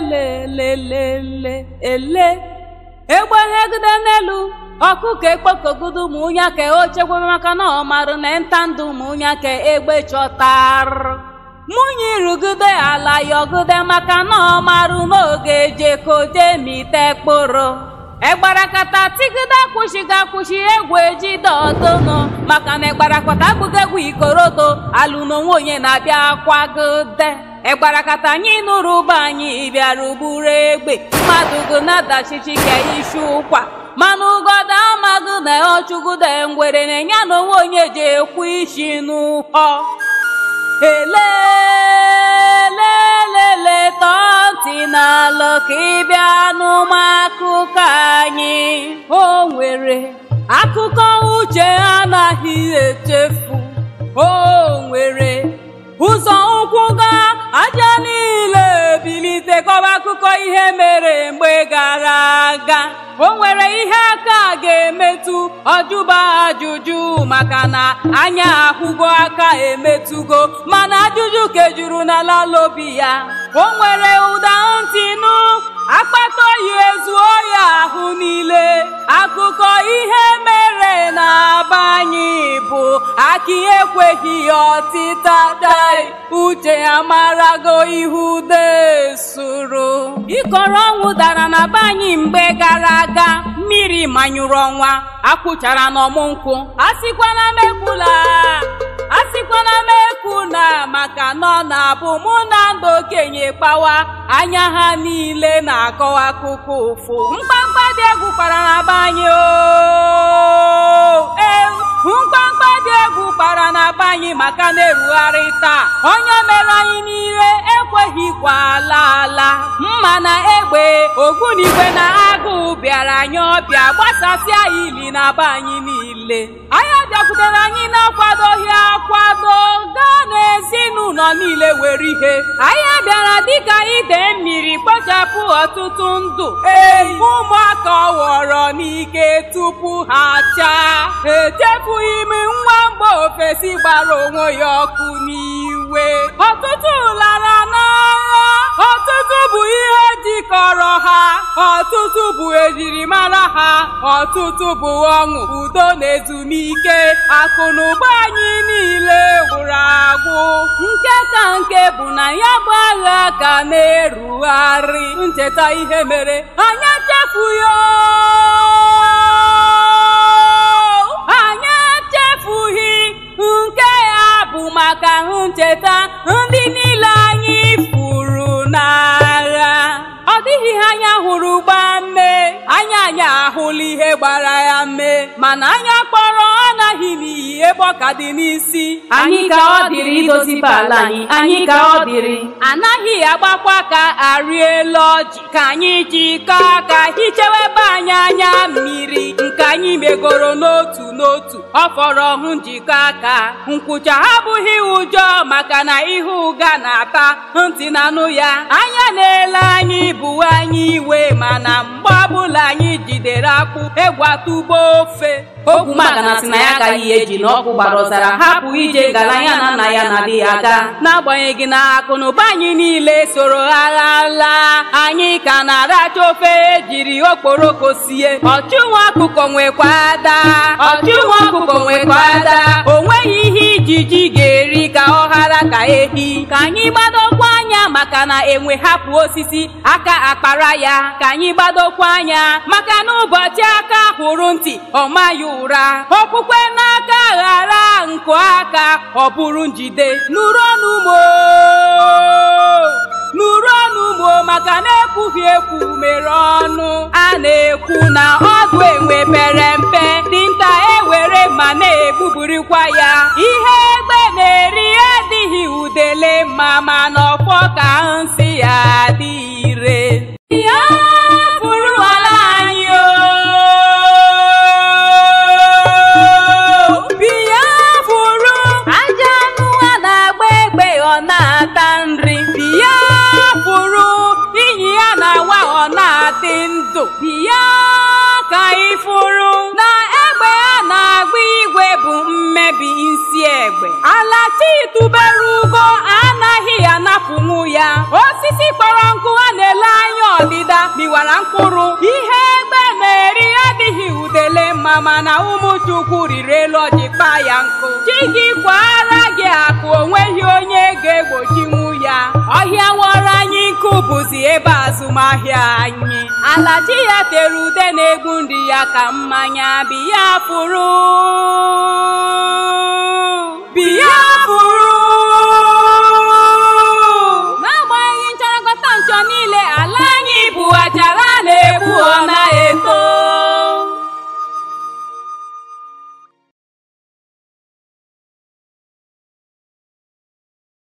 lelelelele ele egbe hegide n'elu ọkụ ka ekpokogudo ụmụnya ka o chekwebe maka na ọ marụ na nta ndụ ụmụnya ka egbe chọtarụ mụnye irugide ala yọgide maka na ọ marụ n'oge jekoje mite kpụrụ egbarakata tigide akwụshighị akwụshi egwu ejide ọdụnụ maka na egbarakata abụghị egwu ikorodo alụ n'onwe onye na-abịa kwagide egbarakata anyị nụrụ ụba anyị bịara ugburu egbe mmadụ gonadachichike isi ụkwa manụ ugoda amagụ na ọchụgụda ngwere na-enye na onwe onye ji ekwu isi n'ụkọ elelelele tọọ ntị ka ịbịa n'ụmụ akụkọ anyị o nwere akụkọ uche anaghị echefu o nwere ụzọ ụkwụ gaa aja niile bilite kọba akụkọ ihe mere mgbe gara aga o nwere ihe aka ga-emetụ ọjụba ajụjụ maka na anya akwụgo aka emetụgo mana ajụjụ kejuru na lalobi ya o nwere ụda ntị nụ akpata oyi ezuo ya ahụ niile akụkọ ihe mere na-aba anyị bụ aki ekweghị ya ọtịta dai uche ya marago ihu desuru ịkọrọ ọnwụ dara na be mgbe gara aga mmiri manyụrụ ọnwa na n'ọmụ nkwụ a sịkwana megbula a sịkwana m ekwu na maka nọ na-abụ mụ na ndụ okenye kpawa anya ha niile na-akọwa akụkọ ụfụ mkpamkpa dị egwu kpara na be dị egwu kpara maka na-erugharị taa onye mere anyị n'ire ekweghịkwa ala ala ogbunigwe na agụụ bịara anyị ọbịa gbasasịa ili na be anyị niile anyị bịakwutere anyị na-akwadoghị akwado gaa n'ezinụlọ niile were ihe anyị bịara dịka ide mmiri kpochapụ ọtụtụ ndụ ụmụaka ọghọrọ n'ike tupu ha chaa echefughị m nwa mba ofesi gbara onwe ya ọkụ n'iwe ọtụtụ lara kọrọ ha ọtụtụ bụ ejirimara ha ọtụtụ bụ ọṅụ udo na ezumike anyị niile gwụrụ agwụ nke ka nke bụ na ya bụ agha ka na-erugharị ncheta ihe mere anyị chefu ya gbara ya mee mana anya kpọrọ anaghị n'iyi ebe ka dị n'isi anyị ka ọ dịrị idozibe ala anyị anyị ka ọ dịrị anaghị agbakwa ka arị elu ọjị ka anyị ji jikọọ aka ebe anyị anya mmiri nke anyị megoro n'otu n'otu ọ fọrọ hụ njikọ aka nkwụcha abụghị ụjọ maka na ihe ụga na-ata ntị na-anụ ya anya na-ele anyị bụ anyị iwe mana mgbe ọbụla anyị jidere akpụ egwatugbo ofe okwumaga na sị na ya agaghị ihe eji na ọkụ gbara ọzara hapụ ije gara ya na nna ya na di ya aga n'agbanyeghị na akụnụba anyị niile soro agha laa anyị ka na-aracha ofe e jiri okporoko sie ọchụnwa akụkọ nwekwa ada ọchụnwa ehi ka anyị gbadokwa anya maka na enwe hapụ osisi aka akpara ya ka anyị gbadokwa anya maka na ụbọchị aka hụrụ ntị ọ maghị ụra okwukwe n'aka ghara nkụ aka ọ bụrụ njide nụrụ ọnụ maka na-ekwughị ekwu mere ọnụ a na-ekwu na ọdụ enwe pere mpe dinta ewere ma na-egbuburikwa ya ihe egbe na-eri adịghị udele mma ma n'ọkwọ ka nsị ya dị ire ya fụrụ ala anyị anụ na-agba egbe ọ na-ata nri ala titubere ugo anaghị anapụnwu ya osisi kpọrọ nkụ a na-ele anya ọdịda miwara mkpụrụ ihe egbe na-eri adịghị udele mma mana ụmụ chukwu riri elu ọjị kpa ya nkụ chi gị kwara gị akụ onweghị onye ga-egbochiwu ya ọhịa wọrọ anyị nkụ bụzi ebe azụmahịa anyị ala chi ya tere ude na-egbu ndị ya ka mmanya biya pụrụ